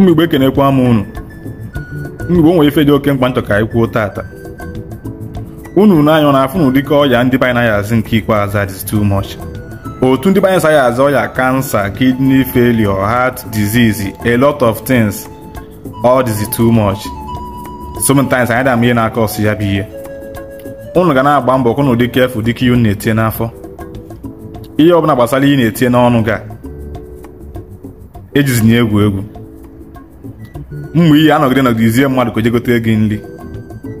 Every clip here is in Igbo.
mgbigbo ekenekwa m unu mgbigbo nwere ife dị oke mkpa nchọ ka anyị kwuo tata unu n'anya ọ na afụ na ụdịka ọya ndị be anyị naghị azị nke ikpeazụ that is too much otu ndị be anyị saghị azụ ọya kansa kidney failure heart disease a lot of things all this too much sometimes anyị dam ihe na-aka ọsụ ya bụ ihe ụnụ ga na-agba mbọ kụ na ụdị dịka ihe unu na-etinye n'afọ ihe ọbụla gbasara ihe na-etinye n'ọnụ ga ejizinye egwu egwu mgbe ihe anọgide nọgidezie mmadụ ka gote gị nri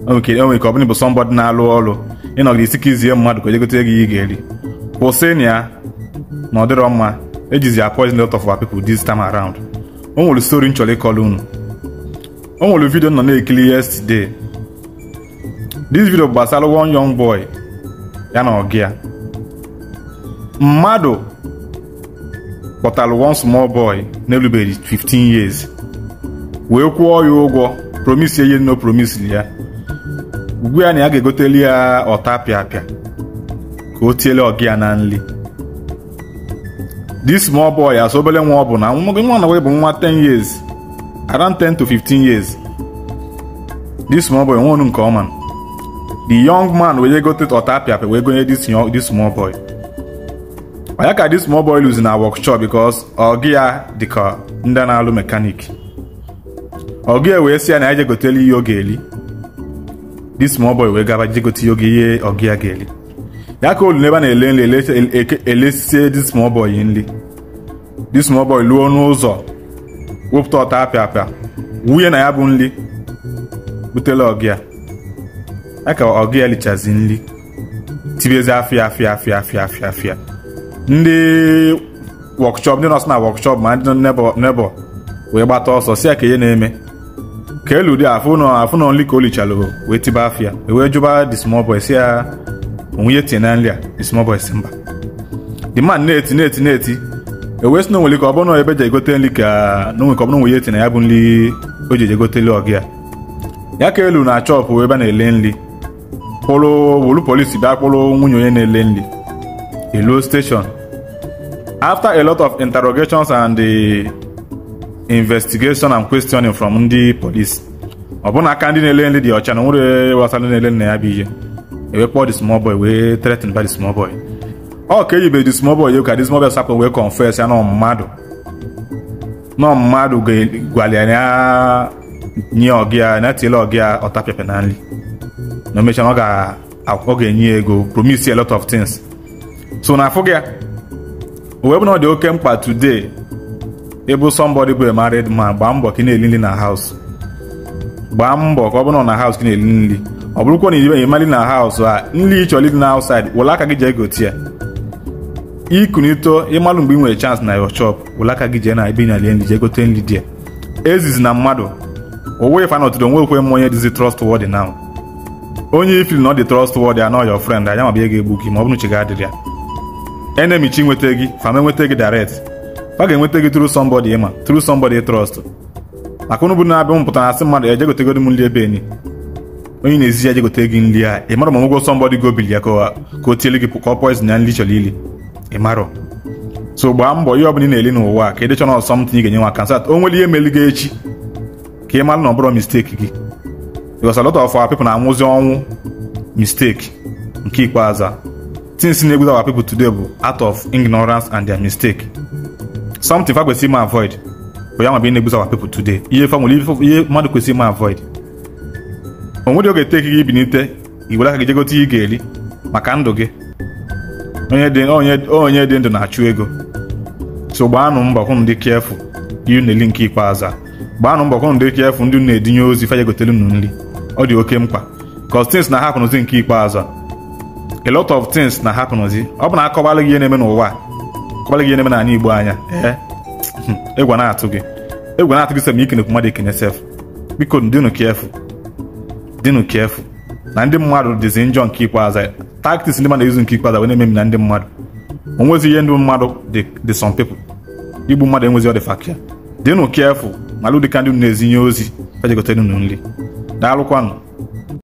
onwe ka ọ bụla ịbụ sọmbọdị na-alụ ọrụ ịnọgide isi ka izie mmadụ ka gote jegote gị ihe ga-eri kwụsịnụ ya na ọ dịrọ mma ejizi poison out of our people this time around o nwere stori m chọrọ ịkọrọ unu o nwere vidio nọ na-ekiri yesterday this video gbasara one young boy ya na ọgụ mmadụ kpọtara one small boy na-erubeghị 15 years wee kwụọ ya ụgwọ promise ihe nno promise ya ugbu ya na ya ga-egoteli ya ọta pịapịa ka o tiele ọgị ya na nri this small boy as obere nwa ọ bụ na nwa na bụ nwa 10 years around 10 to 15 years this small boy nwonu nke ọma the young man wee gote ọta apịapịa wee gonye this small boy ọ ya ka this small boy lose na workshop because ọgị ya dịka ndị na-alụ mekanik ọgụ wee sị ya na ya je gotelu ihe ọ ga-eli dis small boy wee gaba je gote oge ihe ọgụ ya ga-eli ya ka olu n'ebe a na-ele nri elesie dis small boy nri dis small boy luo n'ụzọ wepụta ọta apịa apịa wunye na ya bụ nri butela ọgụ ya ya ka ọgụ ya lichazi nri tibezi afịa afịa afịa afịa afịa afịa ndị wọkshọp ndị nọsụ na wọkshọp ma ndị nebọ wee gbata ọsọ si ya ka ihe na-eme ka elu dị afụ nọ afụ nọ nri ka o lichalụ wee tiba afịa wee jụba the small boy si ya onwe ya na nri a the small boy si mba the man na-eti na-eti na-eti ewee si na onwere ka ọ bụrụ na ebe ji egote nri ka na onwe ka ọ bụrụ onwe ya eti na ya bụ nri o ji egote nri ọgị ya ya ka elu na chọpụ ebe a na-ele nri kpụrụ wolu polisi bịa kpụrụ nwunye onye na-ele nri elu station after a lot of interrogations and eh, investigation and questioning from ndị police ọbụna aka ndị na-ele nri dị ọcha na nwere wasa ndị na-ele nna ya bụ ihe ewe kpọọ the small boy wee threaten by the small boy ọ ka eyibe the small boy ka the small boy sapụ wee confess ya na mmadụ na mmadụ gwalịa ya nye ọgị ya na tiele ọgị ya ọtapịapịa na nri na omecha ọ ga-enye ego promise a lot of things so na afụ gị ya bụ na ọ dị oke mkpa today ịbụ somebody bụ a married man gbaa mbọ ka ị na-eli nri na house gbaa mbọ ka ọ bụrụ na haus gị na-eli nri ọ bụrụkwa na iribeghị mmadụ na haus a nri ị chọrọ ịdị na ausaid were aka gị jee gote ya ikunito ịmalụ mgbe ị nwere chansị na your shop aka gị jee na ebe ị na-elie nri jee gote nri dị ya ezizi na mmadụ owe fa na otudo nwekwe m onye dịzi trustworthy now onye ifil na ọ dị trustworthy anọ your friend anya mabịa ga-egbu gị ma ọ bụrụ chi adịrị ya enemichi nweta gị fama enweta gị direct fa ga-enweta gị through somebody ịma through somebody trọst maka ụnụ bụrụ na-abịa m pụtara asị mmadụ eje gotegodi m nri ebe enyi onye na-ezi ya jegote gị nri a ị marọ ma nwego sọ mbọdị gobili ya ka o tiele gị ka ọ poizin ya nri chọrọ ili ị marọ so gbaa mbọ ihe ọbụla ị na-eli n'ụwa ka ịdịchọ dịchọrọ ọsọ m ga-enye nwa sat o nwere ihe meli gị echi ka ị mara na ọ bụrụ misteki gị because a lot of our people na-anwụzi ọnwụ misteki nke ikpeazụ things na-egwu our people today bụ out of ignorance and their mistake something fa kwesịrị ime avoid for yam being able to our people today ihe fa nwere ihe mmadụ kwesịrị ma avoid o nwere oge teki gị ibinite iwere aka gị jegote ihe ị ga-eri maka ndụ gị onye dị ndụ na-achụ ego so gbaanụ mbọ hụ ndị kefụ ihe na nke ikpeazụ a gbaanụ mbọ hụ ndị kefụ ndị na-edinye ozi fa jegotere unu ọ dị oke mkpa cause things na-ahapụnụzi nke a a lot of things na-ahapụnụzi ọ bụ na ihe na-eme n'ụwa egwu na-atụ gị egwu na-atụ gị sọ ma ikenekwu mmadụ ekene sef biko dịnụ kefu dịnụ kefu na ndị mmadụ dịzi njọ nke ikpeazụ taktiks ndị mmadụ izu nke ikpeazụ wee na-ememi na ndị mmadụ onwezi ihe ndị mmadụ dị some pepụ igbu mmadụ enwezi ọ dị fakia dịnụ kefu malụ dịka ndị na-ezinye ozi ejegotere unu nri daalụkwanụ